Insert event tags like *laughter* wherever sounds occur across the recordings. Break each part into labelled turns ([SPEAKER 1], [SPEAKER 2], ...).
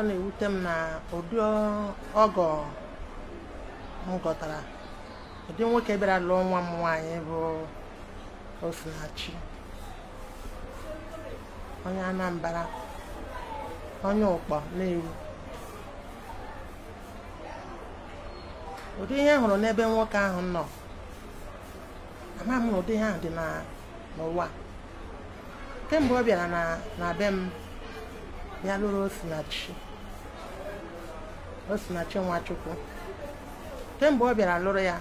[SPEAKER 1] ọ na-ewute m na ụdị ọgọ m gọtara ụdị nwoke bịara lụọ nwa m nwaanyị bụ Osinachi onye Anambra onye ụkpọ na-ewu ụdị ihe hụrụ n'ebe nwoke ahụ nọ amaghị m ụdị ihe ahụ dị n'ụwa kemgbe ọ bịara na be m bịa lụrụ Osinachi o si na kemgbe ọ bịara lụrụ ya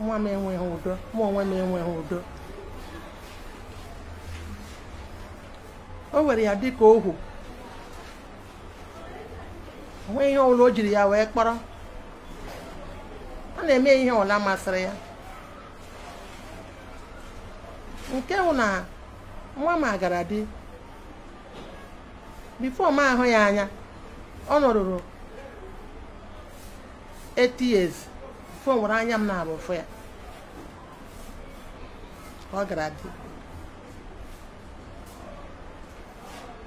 [SPEAKER 1] nwa m enweghị udo mụ onwe m enweghị udo o were ya dị dịka ohu nwee ihe ọbụla o jiri ya wee kpọrọ ọ na-eme ihe ọbụla masịrị ya nke bụ na nwa m agara di bifo m ahụ ya anya ọ nọrụrụ 8 years nwere anya m na-abụ fụ ya ọ gara dị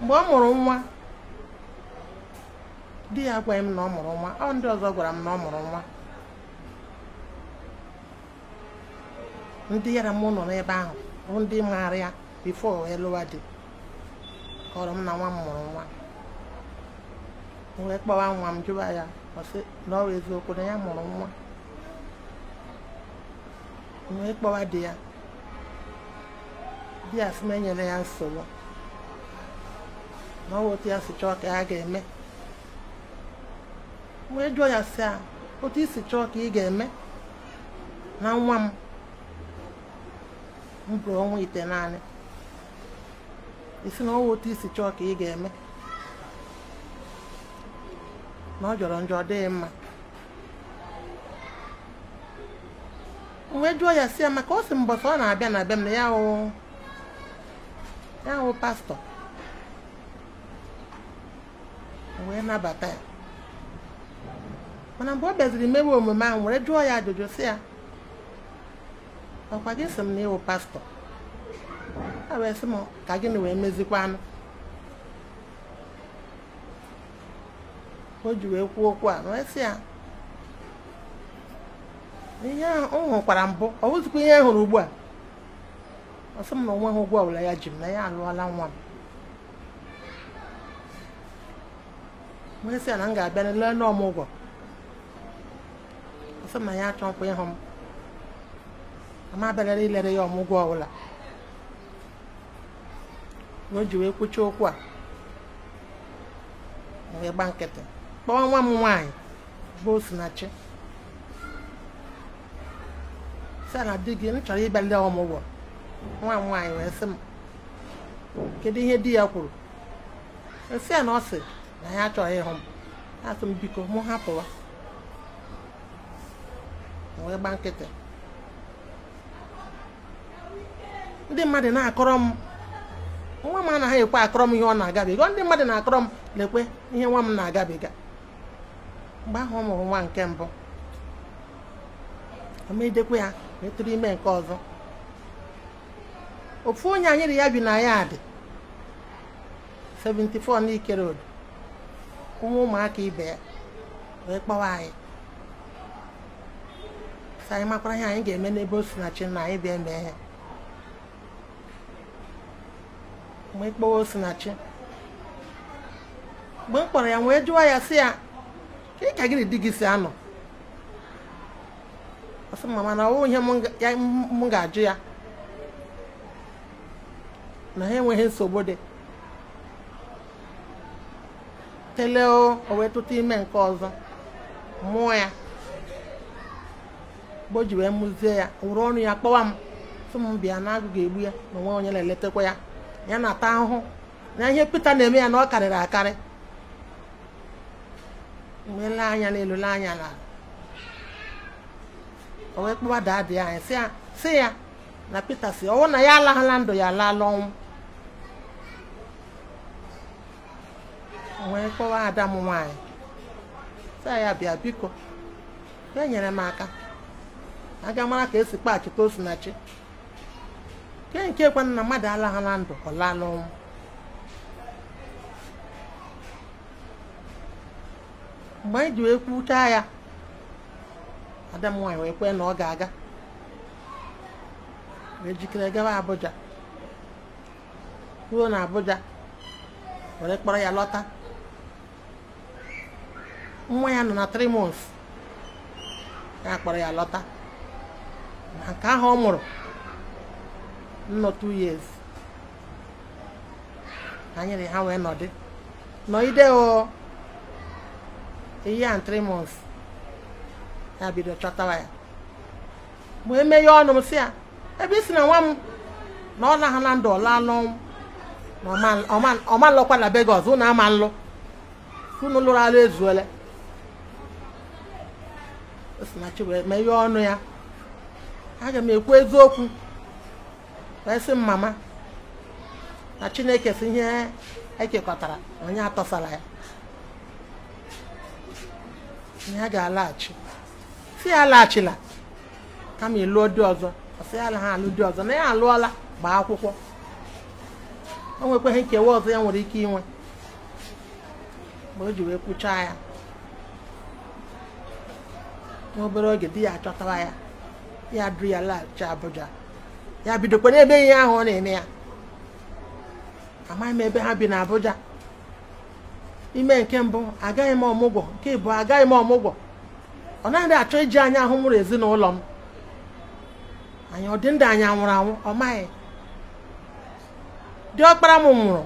[SPEAKER 1] mgbe ọ mụrụ nwa di ya agwaghị m na ọ mụrụ nwa ọ ndị ọzọ gwara m na ọ mụrụ nwa ndị yara m nọ n'ebe ahụ bụ ndị maara ya bifo elụwa dị kọrọ m na nwa m mụrụ nwa wee kpọwa nwa m jụwa ya ọsị na ọrụ eziokwu na ya mụrụ nwa wee kpọwa di ya di ya na enyere ya nsogbu na ọ otu ya si chọọ ka ya ga-eme wee jụọ ya si a otu isi chọọ ka ị ga-eme na nwa m m bụrụ ọnwa ite naanị isi na ọwa otu isi chọọ ka ị ga-eme na ọ jọrọ njọ dịghị mma wee jụọ ya si ya maka o si mbọsị ọ na-abịa na abịa m na ya hụ ya pastọ wee nabata ya mana mgbe ọ bịaziri mewe omume ahụ were jụọ ya ajụjụ si ya ọkwa gị si m na ịwụ pastọ a wee sị m ka gịnị wee mezikwa anụ o ji wee kwuo okwu a na-esi ya ihe ahụ ọ hụkwara mbụ ọ bụzikwa ihe a hụrụ ugbu a ọsọ m na onwe ha ụgwọ ọbụla ya ji m na ya alụọla nwa m onye a na m ga-abịa n'ele n'ọmụ ụgwọ ọsọ m na ya achọ nkwa ịhụ m ama abịarara ilere ya ọmụgwọ ọbụla o ji wee kwụcha okwu a wee gba nkịtị kpọọ nwa m nwaanyị bụ Osinachi si di gị m chọrọ ịbịa ndị ọmụgwọ nwa m nwaanyị wee sị m kedu ihe di ya kwuru nsị e ya na ọ sị na ya achọghị ịhụ m asị m biko mụ hapụwa wee gba nkịtị ndị mmadụ na-akọrọ m nwa m anaghị ekwe akọrọ m ihe ọ na-agabiga ndị mmadụ na-akọrọ m lekwe ihe nwa m na-agabiga mgbe ahụ ọ mụrụ nwa nke mbụ amedekwa ya wee tụrụ ime nke ọzọ ofu onye anyịrị ya bi na ya dị 74 n'ikere odo Ụmụ ụmụaka ibe ya wee kpọwa anyị sa anyị makwara ihe anyị ga-eme n'ebe o si na chi na anyị bịa mee ya mgbe na osinachi mgbe m kpọrọ ya wee jụwa ya si ya ị ka gị na di gị si anọ ọsị mama na ihe m ga-ajụ ya na ha enweghị nsogbu dị tele o wee tụta ime nke ọzọ mụọ ya mgbe ji wee mụzie ya wụrụ ọnụ ya kpọwa m sị m bịa na agụ egbu ya na onwe onye na-eletakwa ya ya na-ata ahụhụ na ihe Pita na-eme ya na ọ karịrị akarị wee anya n'elu lee anya na o wee kpọwa anyị si ya na peter si ọwụ na ya alaghala ndụ ya ala ọnwụ wee kpọwa ada m nwaanyị ya bịa biko ya nyere m aka aga mara ka esi kpa achịta osinachi nke nke na mmadụ alaghala ndụ ọ laala ọnwụ mgbe anyị e ji wee kwuchaa ya ada m nwanyị wee kwee na ọ ga-aga wee jikere gawa Abuja ruo na Abuja were kpọrọ ya lọta nwa ya nọ na three months ya kpọrọ ya lọta na nke ahụ ọ mụrụ nnọ two years anyị na ha wee nọdị nọgide a year three months ya bido chọtawa ya mgbe emeghe ọnụ m si ya ebe isi na nwa m na ọ naghị na ndụ ọla n'ọnwụ na na Lagos ụnụ ama nlụ unu lụrụ alụ ezuole osinachi ọnụ ya aga m ekwu eziokwu wee sị mama na Chineke si ihe ekekọtara onye atọsara ya ya ga-alaghachi si ya alaghachila kama ịlụọ di ọzọ ọsị ya ha alụ dị ọzọ na ya alụọla gbaa akwụkwọ o nwekwaghị nkewa ọzọ ya nwere ike inwe mgbe o ji wee kwụchaa ya n'obere oge di ya achọtara ya ya duru ya laghachi Abuja ya bidokwa n'ebe ihe ahụ ọ na-eme ya amaghị m ebe ha bi na abụja ime nke mbụ agaghị m ọmụgwọ nke ịbụ agaghị m ọmụgwọ ọ naghị achọ iji anya ahụ mụrụ ezinụlọ m anyị ọ ndụ anya nwụrụ anwụ ọ maghị ọkpara m nwụrụ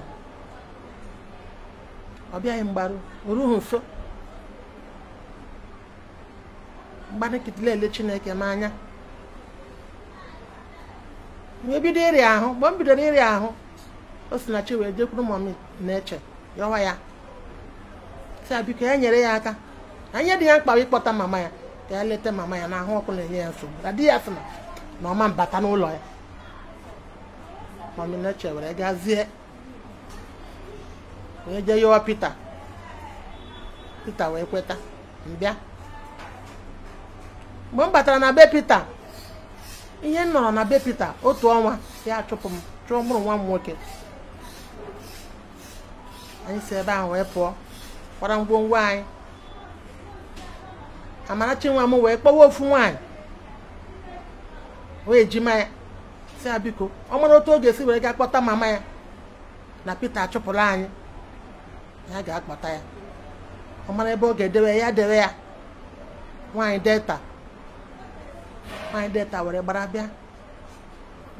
[SPEAKER 1] ọ bịaghị mgbaru oruhu nso ele chineke m anya wee bido ịrịa ahụ mgbe m bidoro ịrịa ahụ o si na chi wee jekwuru mọmi na-eche yọwa ya sa biko ya e nyere ya aka anya dị ya mkpa ịkpọta mama ya ka ya leta mama ya na ahụ ọkụ na-enye ya nsogbu na di ya sị na ọma mbata n'ụlọ ya maminache were gazie wee jee yọọ Pita Pita wee kweta mbịa mgbe m batara na be Pita ihe m nọrọ na be Pita otu ọnwa ya chụpụ m chụọ mụrụ nwa m nwoke anyị si ebe ahụ wee pụọ gbara ngwongwo anyị Amarachi nwa m wee kpọwa ofu nwaanyị o ejima ya si ya biko ọ mara otu oge esi were gaa kpọta mama ya na Peter achụpụrụ anyị ya ga-akpọta ya ọ mara ebe ọ ga-edewe ya dewe ya nwaanyị delta nwaanyị delta were gbara bịa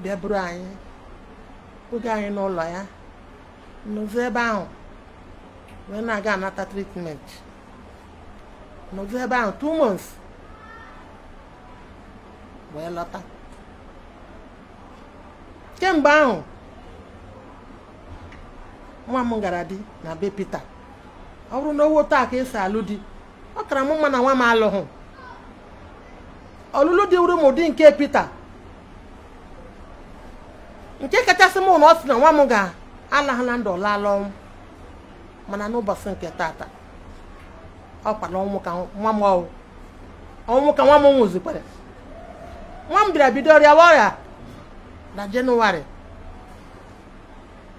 [SPEAKER 1] bịa buru anyị oge anyị n'ụlọ ya n'ozu ebe ahụ wee na-aga anata tritment nọdụ ebe ahụ two months wee lọta kemgbe ahụ nwa m gara di na be ọ bụrụ na owo taa ka esi alụ di ọ kara m mụ na nwa m alụghị ọlụlụ dị nke Peter nke kachasị mụ na ọ sị na nwa m ga-alahụ na ndụ ọlala ọnwụ mana n'ụbọchị nke tata ọ na ọnwụ ka nwa m ọnwụ ọnwụ ka nwa m nwụzikwara nwa m bịara bido ọrịa ọrịa na jenụwarị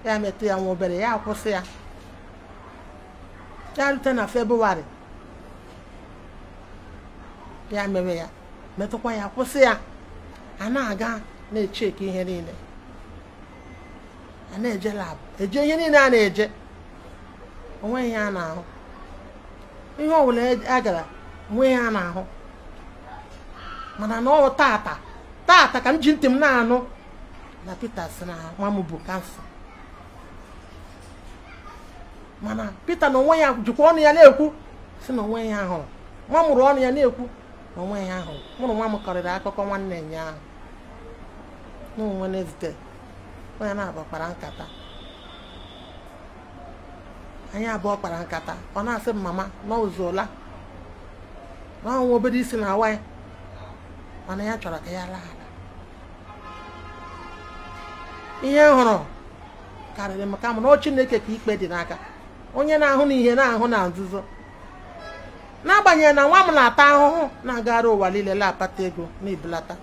[SPEAKER 1] ya metụ ya nwa obere ya kwụsị ya ya rute na febrụwarị ya mere ya metụkwa ya kwụsị ya a na-aga na eke ihe niile a na-eje lab, eje ihe niile a na-eje onwe ihe a ihe ọbụla a e, e gara onwe ihe a ahụ mana na ọ taata tata ka m ji ntị m na-anụ na Pita si na nwa m bụ kansa mana Pita na onwe ya jikwa ọnụ ya na-ekwu si na onwe ya hụrụ nwa mụrụ ọnụ ya na-ekwu na onwe ya hụrụ mụrụ nwa m kọrịrị akụkọ nwanne ya ahụ na Wednesday onye na-agbakwara nkata anyị abụọ kpara nkata ọ na-asị m mama na ụzụla obodo obere isi na awa mana ya chọrọ ka ya laa ala ihe m hụrụ karịrị m ka m na Chineke ka ikpe dị n'aka onye na-ahụ na ihe na-ahụ na nzuzo n'agbanyeghị na nwa m na-ata ahụhụ na-agara ụwa niile na ego na ibelata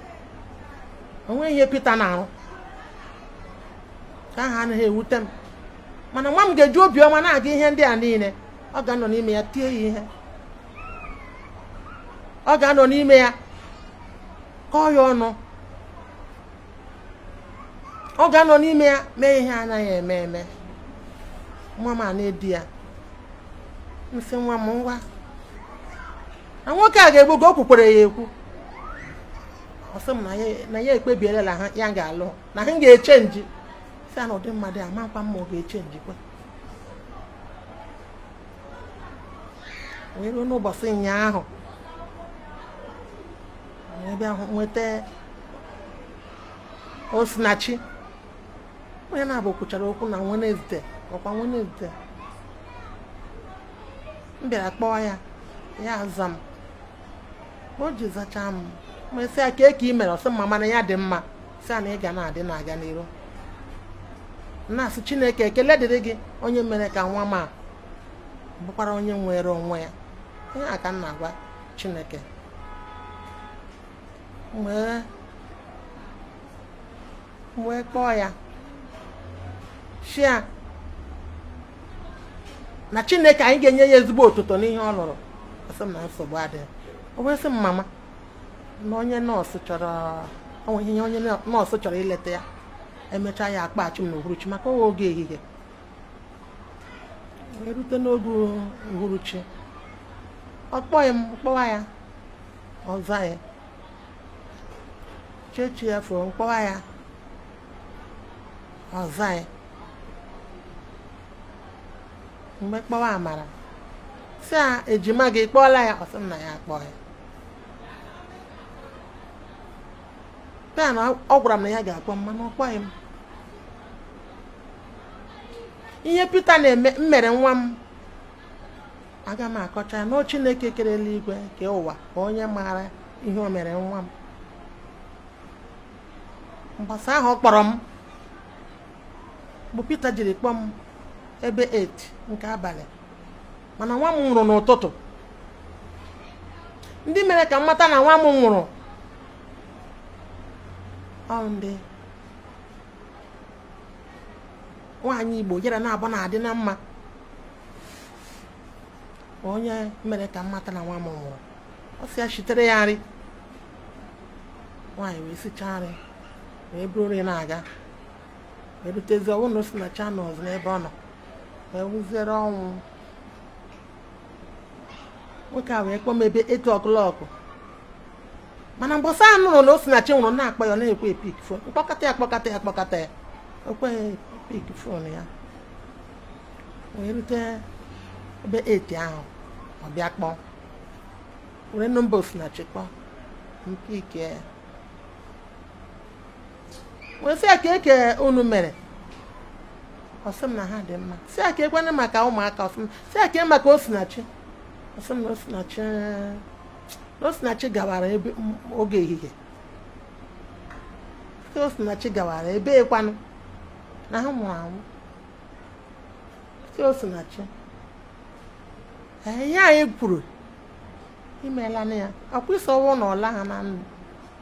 [SPEAKER 1] onwe ihe Pita na-arụ ka aha anaghị ewute m mana nwa m ga-eji obiọma na-aga ihe ndị a niile ọ ga-anọ n'ime ya tie ya ihe ọ ga-anọ n'ime ya kọọ ya ọnụ ọ ga-anọ n'ime ya mee ihe anaghị eme eme nwa m a na-edi ya nsị nwa m ngwa na nwoke a ga-egbu ka o ya ekwu ọsọ m na ya ekpebiela na ya ga-alụ na ha ga-eche nji si a na mmadụ ya makwa mma ọ ga-echenjikwa wee ruo n'ụbọchị ụnyaahụ ebe ahụ nweta osinachi onye na-abụ kwuchara okwu na Wenezde ọkwa Wenezde m bịara kpọọ ya ya aza m o ji zachaa m mesịa kee ka ị mere ọsọ mma mana ya dị mma si ya na ị ga na-adị na-aga n'iru na chineke ekele dịrị gị onye mere ka nwa ma a bụkwara onye nwere onwe ya ihe a ka m na-agwa chineke wee kpọọ ya shia na chineke anyị ga-enye ya ezigbo otuto n'ihe ọ lụrụ asị na nsogbu adịghị o bụ sị m na onye nọọsụ chọrọ onwe ihe onye nọọsụ chọrọ ileta ya emechaa ya akpachi m na uhuruchi maka oge ehihie erute n'oge uhuruchi ọ kpọghị m kpọwa ya ọza ya chechi ya fụrụ mkpọwa ya ọza ya mgbe kpọwa amara si a ejima gị kpọọla ya ọsị m na ya akpọ ya a na ọ gwara m na ya ga-akpọ m mana ọ m ihe Pita na-eme mmere nwa m aga m akọcha ya na Chineke kere eluigwe ka ụwa ka onye maara ihe o mere nwa m mgbasa ahụ ọ kpọrọ m bụ Pita jiri kpọọ m ebe 8 nke abalị mana nwa m nwụrụ n'ụtụtụ ndị mere ka m mata na nwa m nwụrụ ọ ndị nwaanyị igbo yara na na-adị na mma onye mere ka mmata na nwa m hụrụ ọ sị ya chitere ya nri nwaanyị wee sichaa nri wee buru nri na-aga wee rutezi ọnwụ na osi na chanels n'ebe ọ nọ wee wụziere ọnwụ nwoke a wee kpọọ m ebe etu ọkụlọkụ mana mgbasa anụrụ na Osinachi nwụrụ na-akpọ ya ọ na-ekwe epik fo mkpọkọta ya kpọkọta ya kpọkọta ya piki fon ya wee rute ebe 8 ahụ ọ bịa kpọọ were nọmba osinachi kpọọ nke ike wee sị ka eke unu mere ọsị m na ha dị mma sị ka ekwenye maka ụmụaka ọsị m sị ka e maka osinachi ọsị m na osinachi osinachi gawara ebe oge ehihie osinachi gawara ebe ekwanụ Um e e na ha mụrụ amụ si na chi ihe anyị kwuru imeela na ya akwụsị ọnwụ na ọla ha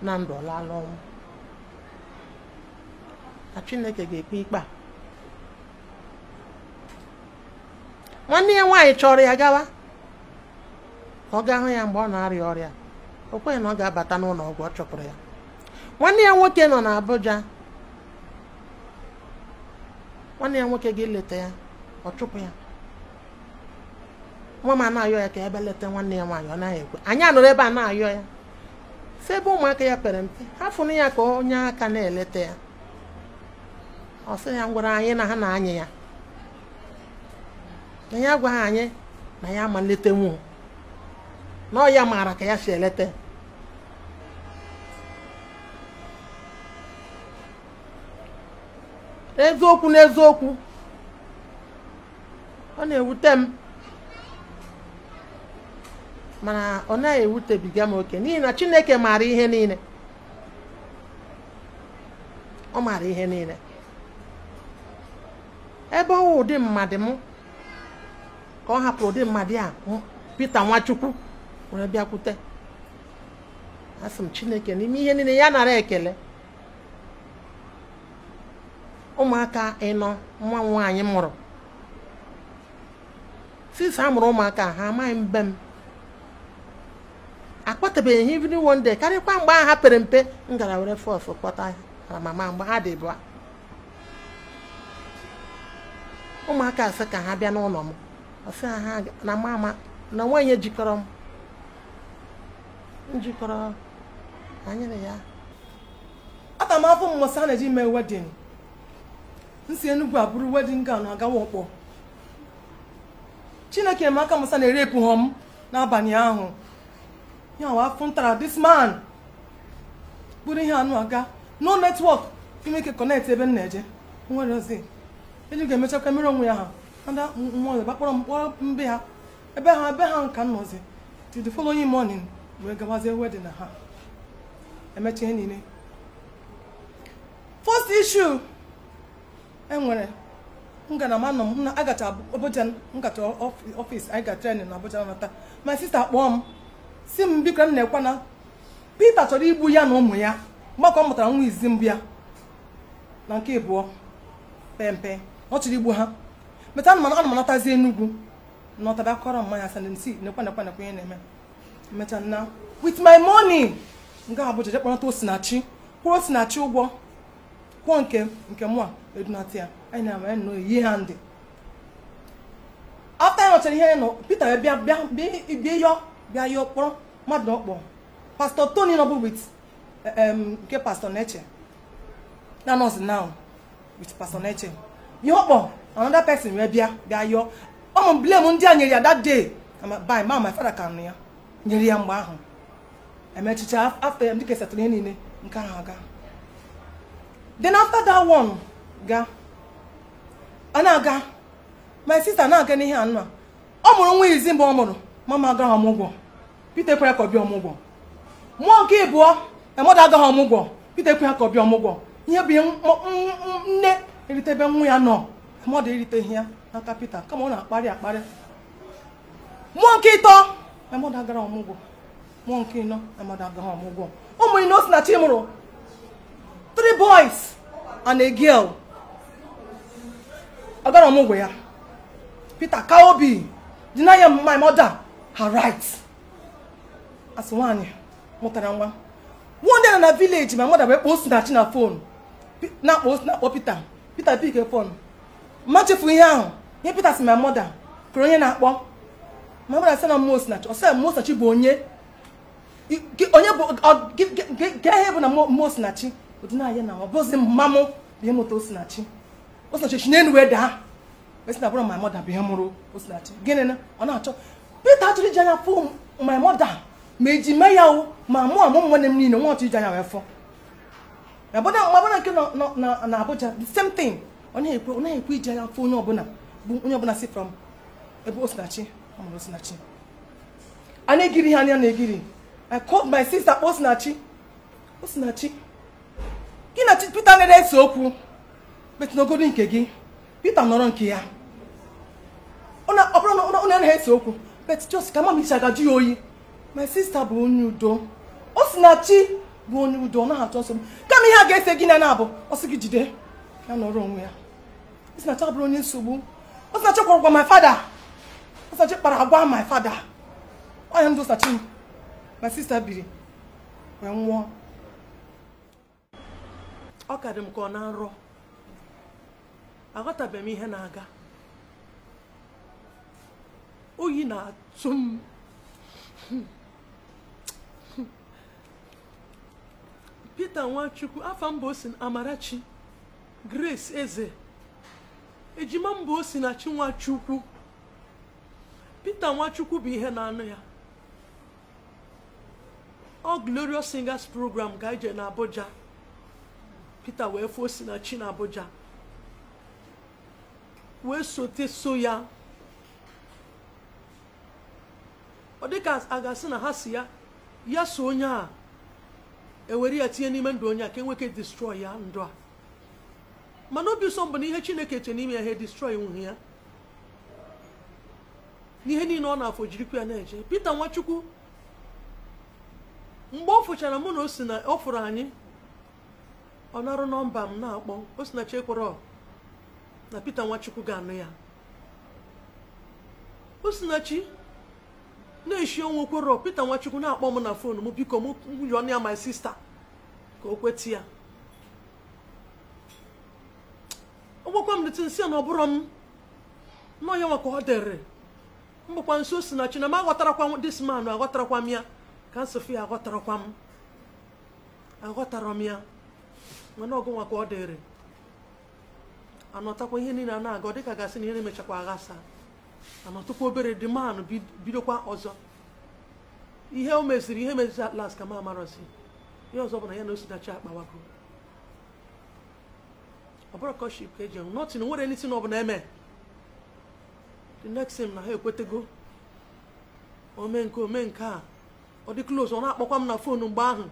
[SPEAKER 1] na ndụ na ọlala ọnwụ na chineke ga-ekpe ikpe a nwanne ya nwaanyị chọrọ ya gawa ka ọ gaa hụ ya mgbe ọ na-arịa ọrịa o kweghị na ọ ga-abata n'ụlọ ọgwụ ọ chọpụrụ ya nwanne ya nwoke nọ abuja. nwanne ya nwoke gị leta ya ọ chụpụ ya nwa m ana-ayọ ya ka ebe leta nwanne ya nwaanyị ọ naghị ekwe anyị anọrọ ebe a na-ayọ ya si ebe ụmụaka ya pere mpe ha fụrụ ya ka onye aka na-eleta ya ọ sị ya ngwara anyị na ha na-anyị ya na ya agwaghị anyị na ya ma nlete nwụ na ọ ya maara ka ya si eleta ya eziokwu n'eziokwu ọ na-ewute m mana ọ na ewutebiga m oke n'ihi na Chineke maara ihe niile ọ maara ihe niile ebe ọwụ ụdị mmadụ m ka ọ hapụrụ ụdị mmadụ a pete Nwachukwu were bịakwute asị m Chineke n'ime ihe niile ya nara ekele ụmụaka ịnọ nwa nwaanyị mụrụ since a mụrụ ụmụaka ha amaghị mbe m akpọtabeghị ha even karịkwa mgbe ha pere mpe m gara were fọs kpọta ha mama mgbe ha dị bụa ụmụaka asị ka ha bịa n'ụlọ m ọsị ha na mama na onwe jikọrọ m njikọrọ anyịrị ya
[SPEAKER 2] aga m afọ mmụsa na-eji mee wedin nsi enugu Enugwu a bụrụ wedin gawn agawa ọkpọ chineke emaka musa na-erepụ ha m n'abalị ahụ ya afọ ntara this man bụrụ ihe anụ aga no netwọk imeke kọnekt ebe m na-eje nwere ozi eji ga-emechakwa mere onwe ya ha ada nwa ọzọ gbakpọrọ mkpọrọ mbe ha ebe ha ebe ha nka nnọzi till the following morning wee gawazie wedin na ha emecha ihe niile first issue enwere ngalaba anọ m na agacha Abuja nkata ọfịs anyị ga trenin na Abuja nata ma sista kpọọ m si m biko m na-ekwe na Pita chọrọ igbu ya na ụmụ ya mgbakọ mụtara nwa izi mbụ ya na nke ịbụọ pempe ọ chọrọ igbu ha meta anụmanụ anụmanatazi Enugwu na ọtaba kọrọ mmanya asa nsi nekwe nekwe nekwe ihe na-eme mecha na with my money nga Abuja jekpọrọta osinachi kwụrụ osinachi ụgwọ kwụọ nke nke mụa edunata ya anyị na-ama ya nnọọ eyi ha ndị afta ya nọchara ihe ya nọ Peter bịa bịa bịa yọ bịa yọ kpọrọ mmadụ na ọkpọ pastọ Tony nọbụ wit nke pastọ Neche na nọọsụ now with pastọ Neche ihe ọkpọ another pesin wee bịa bịa yọ ụmụ blame ndị a nyere ya that day by ma my father ka nụ ya nyere ya mgbe ahụ emechicha afta ya ndị ka ihe niile nke ahụ aga then after that one ga a na-aga my sister na-aga n'ihe a ọ mụrụ nwa izi mgbe ọ mụrụ mama agaghị ọmụgwọ Peter kwere ka ọ bịa ọmụgwọ mmụọ nke ịbụọ emada agaghị ọmụgwọ Peter kwere ka ọ bịa ọmụgwọ ihe bụ ihe nne eritebe nwa ya nọ mmadụ eriteghị ya n'aka Peter kama ọ na-akparị akparị mmụọ nke ịtọ emada agaghị ọmụgwọ mmụọ nke ịnọ emada agaghị ọmụgwọ ụmụ ino si na chi mụrụ three boys and a girl agara ọmụgwọ ya Peter Kaobi deny my mother her rights as nwaanyị mụtara nwa one day na village my mother bụ ekpo osinachi na phone na-akpọ osi na Peter Peter phone ma ihe ahụ ihe Peter si my mother kụrụ onye na-akpọ my mother sị na mmụọ osinachi ọ sị osinachi bụ onye onye bụ bụ na mmụọ osinachi odinaya na ọ bụzi mmamụ bụ ịmụta Osinachi Osinachi si n'elu wee daa esi na bụrụ my mother bụ ihe mụrụ Osinachi gịnị na ọ na-achọ Peter achọrọ iji anya fụ my mother ma eji mee ya o ma mụ amụ nwanne m niile nwa ọchọ iji anya wee fọ mabụna nke na abụja the same thing ọ na-ekwe iji anya fụ onye ọbụla bụ onye ọbụla si from ebe Osinachi ọ mụrụ Osinachi a na-egiri ha anya na-egiri I called my sister Osinachi Osinachi gị na Peter na ese okwu metụnogodo nke gị Peter nọrọ nke ya ọ bụrụ na onye anaghị ese okwu bet jos ka mama isi agaju ya oyi my sister bụ onye udo o si na chi bụ onye udo ọ naghị achọ nsogbu kama ihe a ga-ese gị na na-abụ ọsị gị jide ya nọrọ onwe ya o si na chi abụrụ onye nsogbu o si na chi kwara agwa my father o si na chi kpara agwa my father ọnya ndụ sachi my sister biri wee nwụọ ọ kadị m ka ọ na nrọ aghọtabem m ihe na-aga oyi na-atụ m Peter Nwachukwu afa mba osi Amarachi Grace Eze ejima mba osi na chi Nwachukwu Peter Nwachukwu bụ ihe na-anụ ya ọ Glorious Singers program ga-eje abuja Pita wee fụọ si na Abuja wee sote so ya ọ dịka a ga-asị na ha si ya ya so onye a ewere ya tinye n'ime ndụ onye a ka enweke destroy ya ndụ a mana obi ụsọ mbụ na ihe chineke che n'ime ya ha destroy nwuhe ya n'ihe niile ọ na-afọ jirikwa ya na-eje peter Nwachukwu mgbe ọ fụchara mụ na o si na ọ fụrụ anyị ọ narụ nọmba m na-akpọ Osinachi Ekworo na Peter Nwachukwu ga-anụ ya Osinachi na-eshi onwe Ekworo Peter Nwachukwu na-akpọ m na fon m biko m ọnụ ya my sista ka o kweta ya gwakwa m dịtị nsị na ọ bụrụ m nọ ya nwa ọ dịrị mbụkwa nso Osinachi na m aghọtarakwa this man aghọtarakwa m ya ka nsofia aghọtarakwa m aghọtara m ya mana ọgụnwa ka ọ dịrị anọtakwa ihe niile a na-aga ọ dịka gasị na ihe na-emechakwa aghasa anọtụkwa obere dị manụ bidokwa ọzọ ihe o meziri ihe meziri atlas ka m amarọzi ihe ọzọ bụ na ya na osinachi akpawago ọbụrụ kọship ka eji ọnwụ nọtin nwere nisi na ọbụla eme the next thing na ha ekwetego ome nke ome nke a ọ dị close ọ na-akpọkwa m na fon mgbe ahụ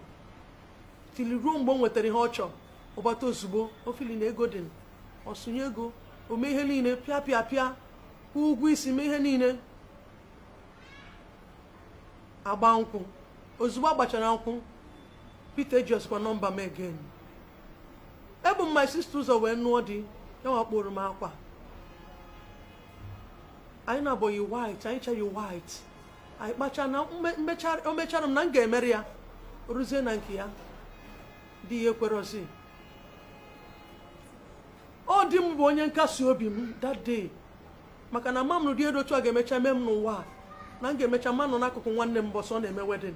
[SPEAKER 2] tili ruo mgbe o nwetara ihe ọ chọrọ ọgbata ozugbo ofili na ego dị ọsụnye ego ome ihe niile pịa pịa pịa kwụ ụgwọ isi mee ihe niile agba nkwụ ozugbo agbachara nkwụ Pita ejiọsikwa nọmba m egen ebu m my sister ụzọ wee nụọ di ya wakporo m akwa anyị na-abụghị white anyị chaghị white anyị kpacha na o mechara m na m ga-emeri ya rụzie na nke ya dị ya ekwerozi ọ dị m bụ onye nkasi obi m that day maka na mam dị edotu a ga-emecha mee m n'ụwa na m ga-emecha mmanụ n'akụkụ nwanne m bọsọ na-eme wedin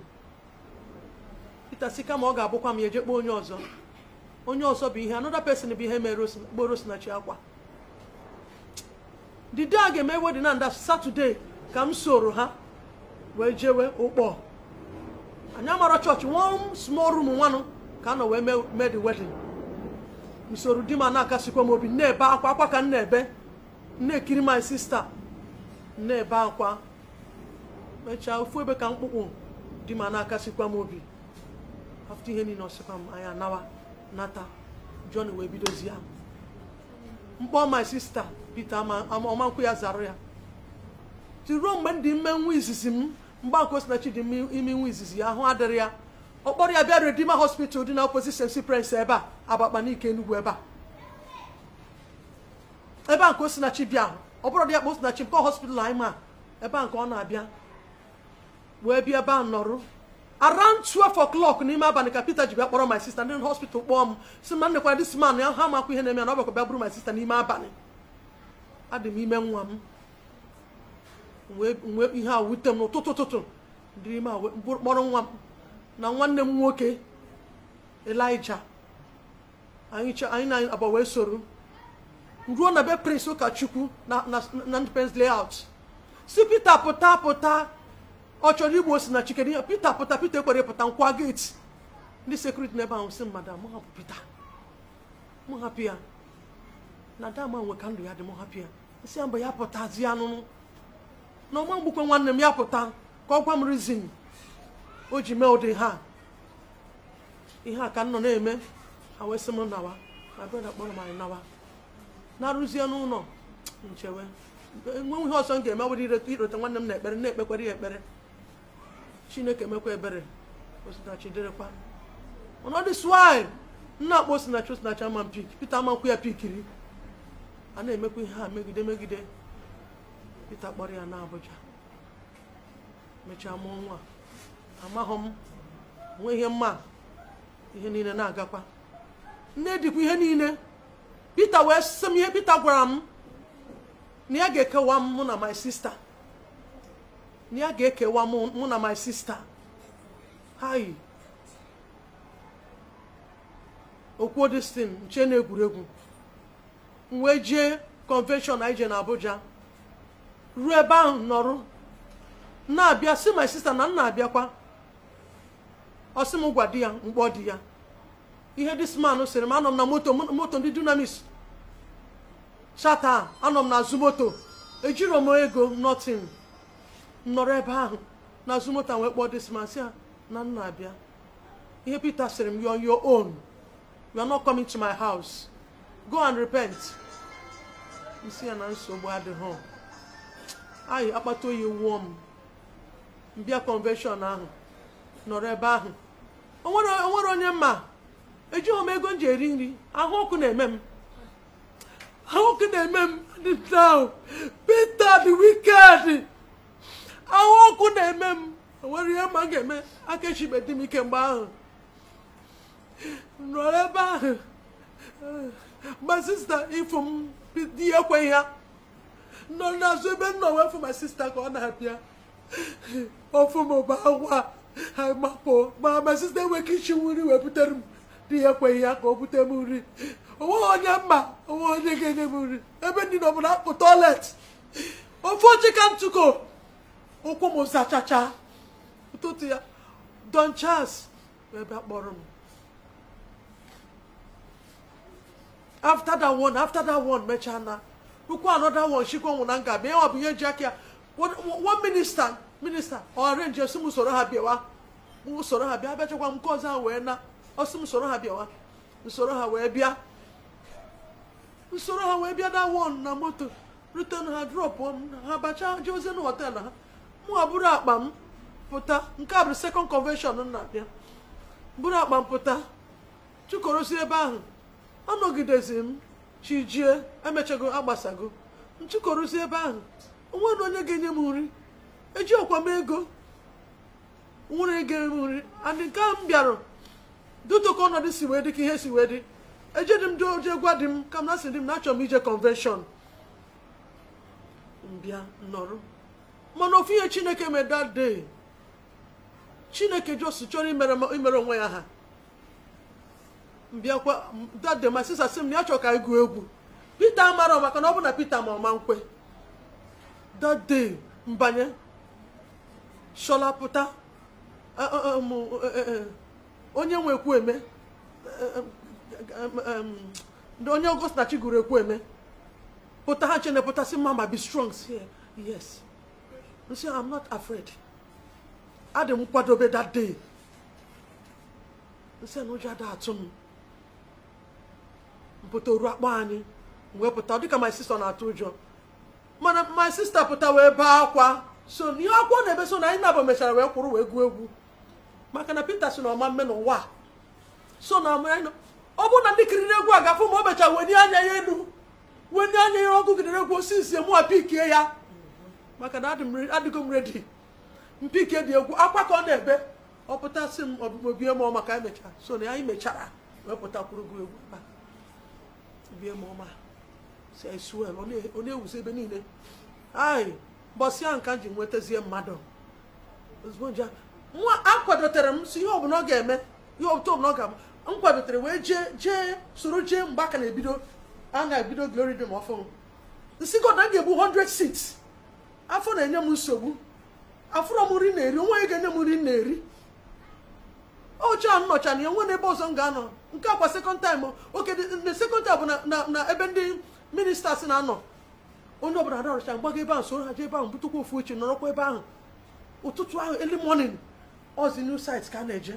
[SPEAKER 2] Peter si kama ọ ga-abụkwa m ya eje kpọọ onye ọzọ onye ọzọ bụ ihe another person bụ ihe mere kporo sinachi akwa the day a ga-eme wedin na nda satọde ka m soro ha wee jewe ụkpọ anya amara chọọchị one small room nwanụ ka a nọ wee mee the wedding usoro di m na-akasikwa m obi na-ebe akwa akwa ka m na-ebe na-ekiri my sista na-ebe akwa mechaa ofu ebe ka mkpụkpụ di m na-akasikwa m obi afta ihe niile ọsịkwa m anya nawa nata John wee bidozi ya mkpọ my sista Peter ọmankwụ ya zara ya ti ruo mgbe ndị dị nwa izizi m mgbe akwụkwọ si dị ime nwa izizi ya ahụ adịrị ya ọ kpọrọ ya bịa redima Hospital dị na opposite St. ebe a n'ike Enugwu ebe a ebe a nke Osinachi bịa ahụ ọ bụrụ dị ya kpa Osinachi nke hospital anyị ma ebe a nke ọ na-abịa wee bịa ebe a nọrụ around twelve o'clock n'ime abalị ka Peter ji bịa kpọrọ my sister ndị hospital kpọọ m si ma nnekwara dis man ya ha makwa ihe na-eme ya na ọ bịakwa bịa bụrụ my sister n'ime abalị adị m ime nwa m wee ihe a wute m n'ụtụtụ ụtụtụ dịrị ime a kpọrọ nwa m na nwanne m nwoke elija anyị na aba wee soro ruo na be prince ụkọchukwu na Independence Layout si Pita pụta pụta ọ chọrọ igbu osi na chikere ya Pita pụta Pita ekwere pụta nkwa geti ndị sekuriti n'ebe ahụ si mmadụ mụ hapụ Pita mụ hapụ ya na dama nwe ka ndụ ya dị mụ hapụ ya si ya mgbe ya anụnụ na ọma mgbukwe nwanne m ya pụta ka ọ gwa m rizin o ji mee ụdị ha ihe a ka nọ na-eme ha wee sị m nawa ma brọda kpọrọ m anyị nawa na-arụzie n'ụlọ nchewe enweghị ihe ọzọ m ga-eme were irote nwanne m na ekpere na-ekpekwere ya ekpere chineke emekwa ebere osinachi dịrịkwa ọnọdụ swanyị nna akpọ osinachi osinachi ama pik pita amankwu ya pikiri a na-emekwa ihe ha megide megide pita kpọrọ ya na abụja mechaa mụọ nwa amaghọ m nwee ihe mma ihe niile na-agakwa nne dịkwa ihe niile peter wee sị m ihe peter gwara m na ya ga-ekewa m mụ na my sister na ya ga-ekewa mụ na my sister hayi okwuo destin nche na egwuregwu m wee jee convention na Abuja ruo ebe ahụ nọrụ na-abịa si my sister na m na-abịakwa ọ sị m gwa di ya mkpọ di ya ihe man sịrị m anọ m na moto moto ndị dunamis chata anọ m n'azụ moto ejiro m ego nọtin m nọrọ ebe ahụ n'azụ moto wee kpọọ disman si ya na nna abịa ihe Peter sịrị m you on your you are not coming to my house go and repent isi ya na nsogbu adịghị anyị akpata oyi wụọ m mbịa convention ahụ nọrọ ebe ahụ onwere onye mma ejighị m ego m ji eri nri ahụ ọkụ na-eme m ahụ ọkụ na-eme m now Peter the ahụ ọkụ na-eme m enwere ihe mma m ga-eme aka echibe m ike mgbe ahụ nọ ebe ahụ ma sista ịfụ m di ekweghị ya nọ n'azụ ebe nnọọ nọ ma sista ka ọ na-abịa ọfụ m bụ agwa ha gbapụ ma ma site enweghị ichi nri wee butere m dị ya ekweghị ya ka o bute m nri onweghị onye mma onwe onye ga-enye m nri ebe ndị na ọbụla akpụ tọilet ofe oji ka ntụko ụkwụ m zachacha ụtụtụ ya don chas ebe akpọrọ m after that one after that one mechaa na ukwu another one chikwa nwụ na nga ma ọ bụ ihe ji aka ya one minister minista ọrenji osi m usoro ha bịawa m ha bịa abịachakwa m nke ọzọ ha wee na osi m usoro ha bịawa nsoro ha wee bịa nsoro ha wee bịa na won na moto ruten ha drop m ha bacha jeoze na họtel ha mụ ha buru akpa m pụta nke a bụ sekọnd m na abịa bụrụ akpa m pụta chukorozi ebe ahụ anọgidezi m chijie emechago agbasago m chụkorosi ebe ahụ onwe na onye ga-enye m nri eji ọkwa m ego nwere ego nri and nke m bịara dutoko ọnọdụ si wee dị ka ihe si wee dị eje dị m dị oje gwa dị m ka m na sị dị m na achọ m ije convention mbịa nọrọ mana ofu ihe chineke mee that day chineke jos chọrọ imere onwe ya ha mbịakwa that day my sị m na ya ka anyị egwu Peter mara maka na ọ bụ na Peter ma ọma nkwe that day mbanye shọla pụta e, e, e. onye nwe ekwueme onye Ọgọstachi gụrụ ekwueme pụta ha chene pụta sị mama be strong yes nsi I'm not afraid adị m kwadobe that day nsị na ụjọ ada atụ m mpụta oru akpa anyị wee pụta dịka my sister na-atụ ụjọ mana my sister pụta wee bee akwa so n'ihe akwụkwọ na-ebe so na anyị nabụ mechara wee kwụrụ wee gụọ egwu maka na Pita si na ọma mme n'ụwa so na ọ bụrụ na ndị kiriri egwu a gafụ ma o mecha weni anya ya elu weni anya ya ọgụ kiriri egwu osisi osinsie mụwa pikie ya maka na adịgo m redi mpikie dị egwu akwa ka ọ na-ebe ọ pụtasị m ọbụbobie ka anyị mechara so na anyị mechara wee pụta kwụrụ pụtakwurugo egwu ebe bie mụọma si anyị suel ọ na-ewuzi ebe niile anyị mbọsị ahụ ka m ji nwetazie mmadụ nwa akwadotere m si ihe ọbụla ọ ga-eme ihe ọbụla ọ ga-eme m kwadotere wee jee jee soro jee mgbe aka na-ebido a na-ebido glory dị m ọfụ nsi na ga-ebu 100 seats afọ na-enye m nsogbu afụrọ m nri na-eri onwe ya ga-enye m nri na-eri oche a nnọcha na ya n'ebe ọzọ m ga-anọ nke akwa sekọnd taịm oke sekọnd taịm bụ na ebe ndị minista na-anọ onye ọbụla ararụcha mgbago ebe ahụ soro haji ebe ahụ butukwa ofu uche nọrọkwa ebe ahụ ụtụtụ ahụ eli morning ọzi new site ka a na-eje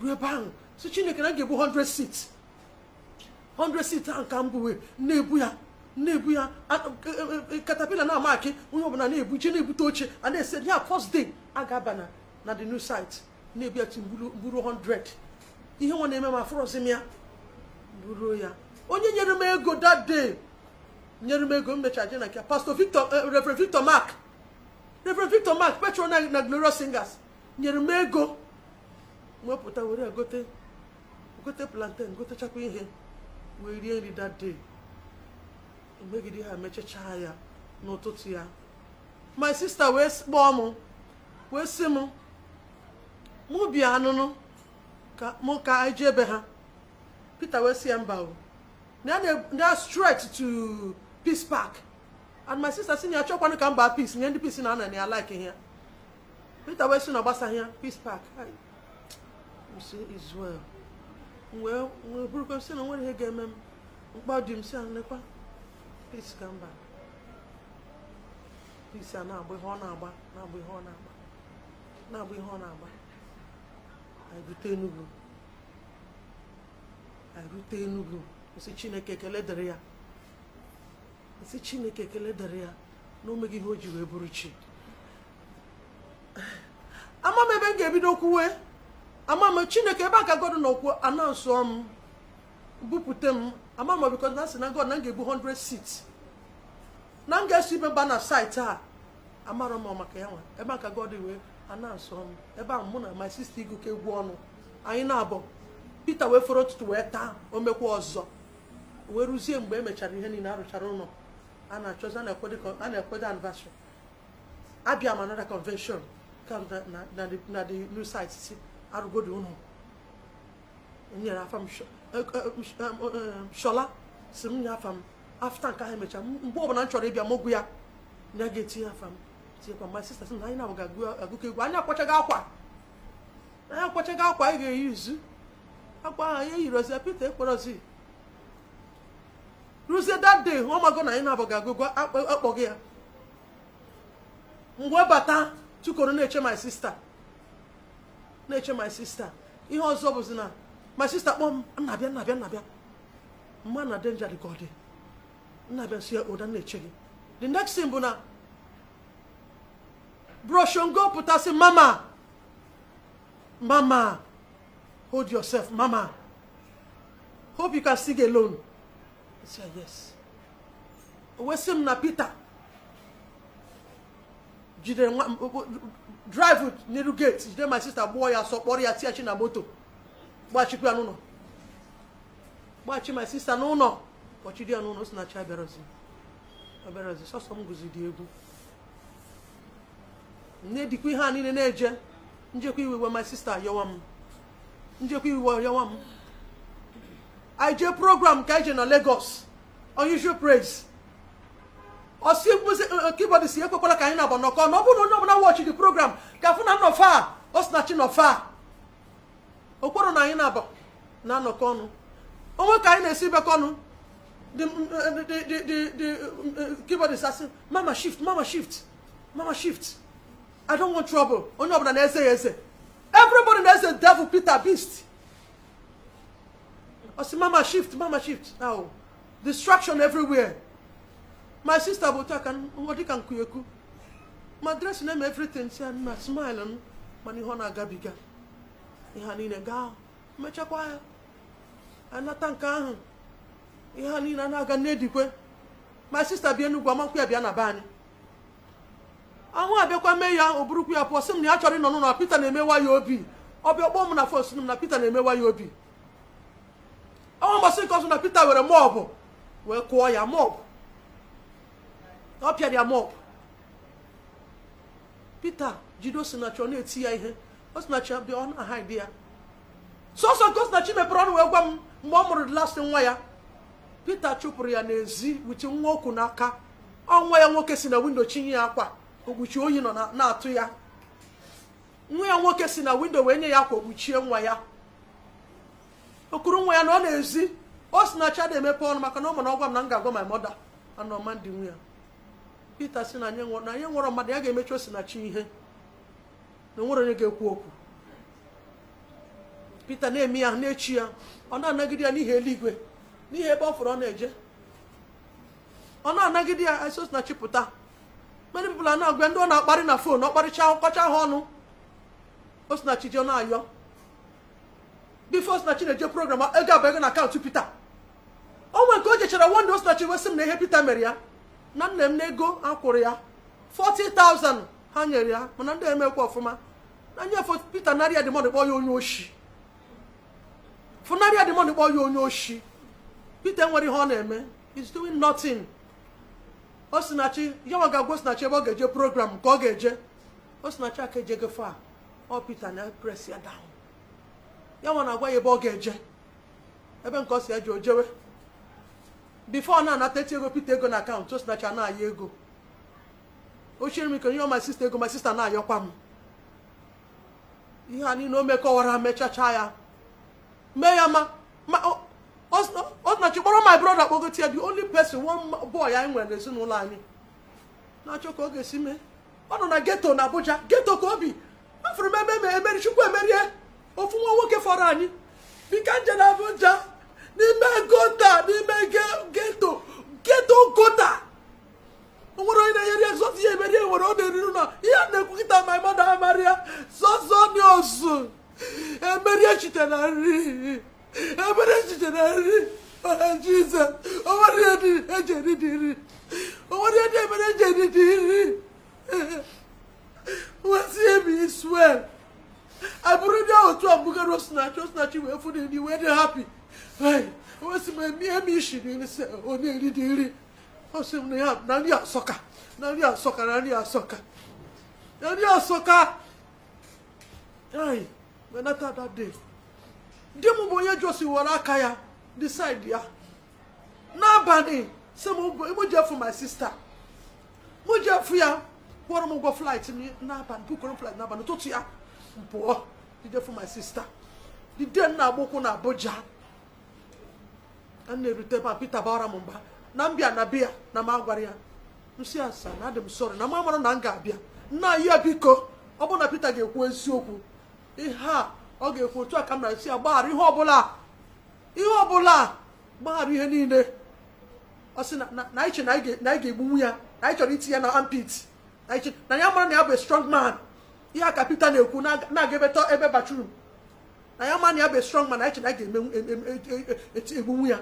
[SPEAKER 2] ruo ebe ahụ si chineke na ga-ebu 100 seats 100 seats ahụ ka m na-ebu ya na-ebu ya katapila e, e, e, na amakị onye ọbụla na-ebu je na-ebute oche a na-ese ya first day a ga-aba na na the new site na-ebu ya buru 100 ihe nwa na-eme ma afụrọzi m ya buru ya onye nyere m ego dat day nyere m ego m mechara je na nke pastor victor eh, reverend victor mark reverend victor mark petro na glorious singers nyere m ego wepụta were gote gote plantain gotechakwa ihe wee rie nri that day mgbegide ha mechachaa ya n'ụtụtụ ya my sister wee kpọọ m wee sị m mụ bịa anụnụ ka mụ ka anyị ji ebe ha peter wee sị ya mba o na stretch to peace park and my sister si na chọkwanụ ka mba peace nye ndị peace na-ana na ya like ihe Peter wey si na ọgbasaghị ya peace park Israel wee burukwa sị na nwere ihe ga-eme m mkpa dị m si anekwa peace ka mba peace a na-agba ihe ọ na-agba na-agba ihe ọ na-agba na-agba ihe ọ na-agba anyị Enugu anyị Enugu nsị Chineke ekele dịrị ya si chineke ekele dara ya na o ihe o ji wee bụrụ chi ama m ebe m ga-ebido kwuwe ama m chineke ebe aka god nọkwuo anansụọ m bupute m ama m bikọ na sị na god na m ga-ebu 100 seats na m ga-eso ibe mba na saịtị a amarọ m maka ya nwa ebe aka god wee anansụọ m ebe ahụ mụ na my sister iguke egwu ọnụ anyị na-abọ Peter wee fọrọ ụtụtụ wee taa o mekwa ọzọ wee rụzie mgbe emechara ihe niile arụchara ụlọ a na-achọzi a na-ekwedo anniversary abịa m another convention na the new site si arụgodo unu nyere afa m shola si m nye afta nke ahụ emechaa mgbe ọbụla m chọrọ ịbịa mogwu ya ya ga-etinye m my sister na anyị na-abụ ga egwu anyị akwachaghị akwa anyị akwa anyị ga-eyi akwa ruzie that day ọmago na anyị na-abụ ga-agụgụ ya mgbe bata chukoro na-eche my sister na-eche my sister ihe ọzọ bụzi na my sister kpọọ m nnabịa nnabịa nnabịa mma na danger dị ka ọ dị nnabịa si ya ụda na-eche gị the next thing bụ na broshongo pụtasị mama mama hold yourself mama hope you can sing alone si yes wee sị m na Peter jidere nwa drive n'elu gate jide my sister gbụọ ya sọ ya ya chi na moto gbachikwa n'uno n'ụlọ gbachi my sister n'ụlọ kpọchiri ya n'ụlọ si na chi abịara ozi abịara sọsọ guzi dị egwu nne dịkwa ihe a niile na-eje njekwa iwe my sister yọwa m njekwa iwe yọwa m anyị jee program ka anyị je na Lagos unusual praise osi eh, eh, keyboard si ekwekwala ka anyị na-agba nọkọ na ọ bụrụ na onye ọbụla wọchị dị program ka afụ na nnọfa ọ sị na chi nọfa okporo na anyị na-aba na anọkọ ọnụ onwe ka anyị na-esi bekọ ọnụ the mm, eh, mm, keyboard asị mama shift mama shift mama shift i don't want trouble onye ọbụla na-eze ya eze everybody na-eze devil peter beast ọ sị mama shift mama shift ahụ distraction everywhere my sister bụ otu aka dịka nkuyekwu ma dressing eme everything si na smile m mana ihe ọ na-agabiga ihe a niile gaa mechakwa ya anata nke ahụ ihe a niile a na-aga n'edikwe my sister bịa Enugwu amakwu ya bịa na be anyị ahụ abịakwa mee ya o burukwu ya pụọ sị m na ya chọrọ ịnọ n'ụlọ Peter na-emewa ya obi ọbịa kpọọ m na fon si m na Peter na-emewa ya obi ọnwa mbọsị nke ọzọ na Pita were mọpụ wee kụọ ya mọpụ ọ pịara ya mọpụ Pita jide Osinachi ọ na-eti ya ihe Osinachi bịa ọ na-ahaidi ya sọsọ nke Osinachi mepere ọnụ wee gwa m mgbe ọ mụrụ lasị nwa ya Pita chụpụrụ ya n'ezi wute nwa okwu n'aka ọnwa ya nwoke si na windo chinye ya akwa okpuchi oyi nọ na-atụ ya nwa ya nwoke si na windo wee nye ya akwa okpuchie nwa ya okuru nwa ya na ọ na-ezi o si na chada emepe ọnụ maka na ọ mana ọgwa m na m ga-agwa my mother anọ mandị nwe ya Pita si na anyị nwụrọ mmadụ ya ga-emechi osinachi ihe na onwere onye ga-ekwu okwu Pita na-eme ya na-echi ya ọ na-anagide ya n'ihi eluigwe n'ihi ebe ọ fụrụ ọ na-eje ọ na-anagide ya esi na pụta mmadụ bụla na-agwa ndị ọ na-akparị na fon ọ kparịcha ọkọcha ha ọnụ osinachi ji ọ na-ayọ bifos na chineje program ego abụghị na akaụntụ pita onwe nke o jechara wonde osinachi wesị m na ihe pita mere ya na nna m na ego akwụrụ ya 40,000 ha nyere ya mana ndị eme emekwa ọfụma na nye pita narịa demond kpọ ya onye oshi funarịa demond kpọ ya onye oshi pita nwere ihe ọ na-eme is doing nothing ya yanwa ga-agwa osinachi ebe ọ ga-eje program ka ọ ga-eje osinachi aka ejego fa ọ pita na press ya down ya nwa na-agwa ya ebe ọ ga-eje ebe nke ọ si eje o jewe bifo na-anata eti ego pete ego na akaụntụ o sinacha na-ayọ ego ochiri m ike onye my sister ego my sister na-ayọkwa m ihe a niile o mekọwara mechacha ya mee ya ma Osinachi kpọrọ my brother kpọgote ya the only person one boy anyị nwere n'ezinụlọ anyị na-achọ ka ọ ga-esi mee ọ nọ na geto na Abuja geto ka obi afụrụ m ebe emeri chukwu emerie ofu nwa nwoke fọrọ anyị bika nje na Abuja n'ime gota n'ime geto geto gota nwere onye na-enyere egzọt ihe emeri nwere ọ na-eriru na ihe a na-ekwu kịta ma mmadụ amarịa sọsọ ni osu emeri echite na nri emeri echite na nri ọha oh, jizọs onwere ihe eji eri e dị nri onwere ihe emere eji eri e e dị nri nwesị *laughs* ebi swel abụrụ ndị ahụ otu mbugharị osinachi osinachi wee fụ nri wee dị hapi wesị m emi emi isi onye nri dị nri ọsị m na ya na nri asọka na nri asọka na nri asọka na nri asọka anyị menata that day di m bụ onye josi were aka ya decide ya n'abalị sị m mụ mụ ya kwụrụ m ụgwọ flight n'abalị flight n'abalị ụtụtụ ya pụọ for my sister dide nna agbụkwụ na abuja a na-erute ebe a Peter bara m mba na mbịa na bịa na m agwara ya na adị m sọrọ na m amara na m ga-abịa nna ya biko ọ bụrụ na Peter ga-ekwu eziokwu ihe a ọ ga-ekwu otu a ka m na-esi ya gbaghara ihe ọbụla ihe ọbụla gbaghara ihe niile ọ sị na anyị che na anyị ga-egbunwu ya na anyị chọrọ iti ya na ampit na anyị mara na ya bụ strong man ihe a ka Peter na-ekwu na-aga ebeta ebe batrum na ya mana na ya bụ strong mana eche na ga-eme e, e, e, egbunwu ya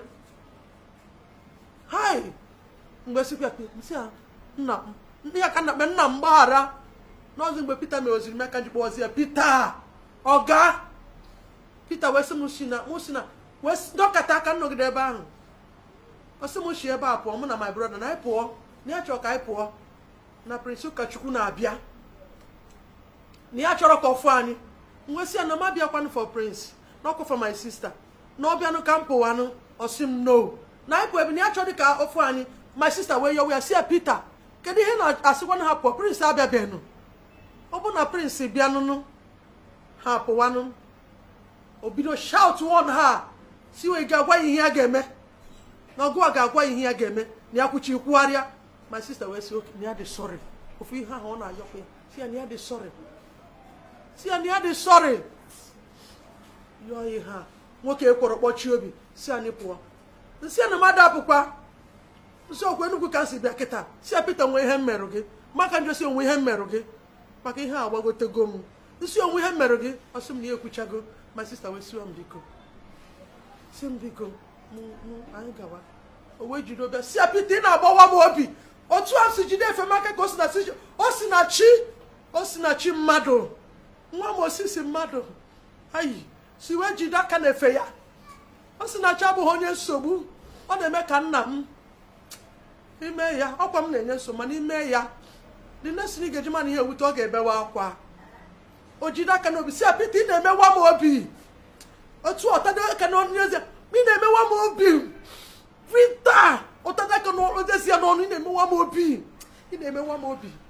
[SPEAKER 2] hi mgbe sikwa nsị nna ya ka na nna m gbaghara n'ọzọ mgbe Peter mere oziri m ji kpọzi ya Peter ọga Peter wee sị m si na m si na wee dọkata aka nnọgide ebe ahụ ọ m si ebe a pụọ mụ na my brother na anyị pụọ na ya chọrọ ka anyị pụọ na Prince Ụkọchukwu na-abịa na ya chọrọ ka ọfụ anyị nwesị ya na m for prince na ọkwa for my sister na ọ bịanụ ka m pụwanụ m no na anyị ebe na ya chọrọ ka ọfụ anyị my sister wee yọwa ya si ya Peter kedu ihe na-asịkwanụ ha pụọ prince abịabeghị ọ bụ na prince bịanụnụ ha pụwanụ o bido shout ha si wee ga-agwa ihe ya ga-eme na ga-agwa ihe ya ga-eme na ya kwuchi my sister wee sị si ya na ya dị sọrị yọọ ihe a nwoke ekworo kpọchie obi si anyị pụọ nsị ya na mmadụ apụkwa nsị okwu enugwu ka si bịa kịta si ya Pita nwe ihe m merụ gị maka njọ si onwe ihe mmerụ gị maka ihe a gbagotego m nsị onwe ihe mmerụ gị ọsị m na ya ekwuchago ma sista wee siwa m biko si m biko anyị gawa o wee jide obịa si ya Pita ị na-agbawa m obi otu a si jide efe maka ka o si na chi o si na chi mmadụ nwa m osisi mmadụ ayi si wee jide aka na-efe ya ọ sị na abụghị onye nsogbu ọ na-eme ka nna m ime ya ọkwa m na-enye nso mana ime ya dị na-esiri mana ihe ewute ọ ga-ebewa akwa o jide aka n'obi si apịta ị na-emewa m obi otu ọtado aka n'ọnụ ị na-emewa m obi pita ụtado aka n'ọnụ ya n'ọnụ ị na-emewa m obi ị na-emewa m obi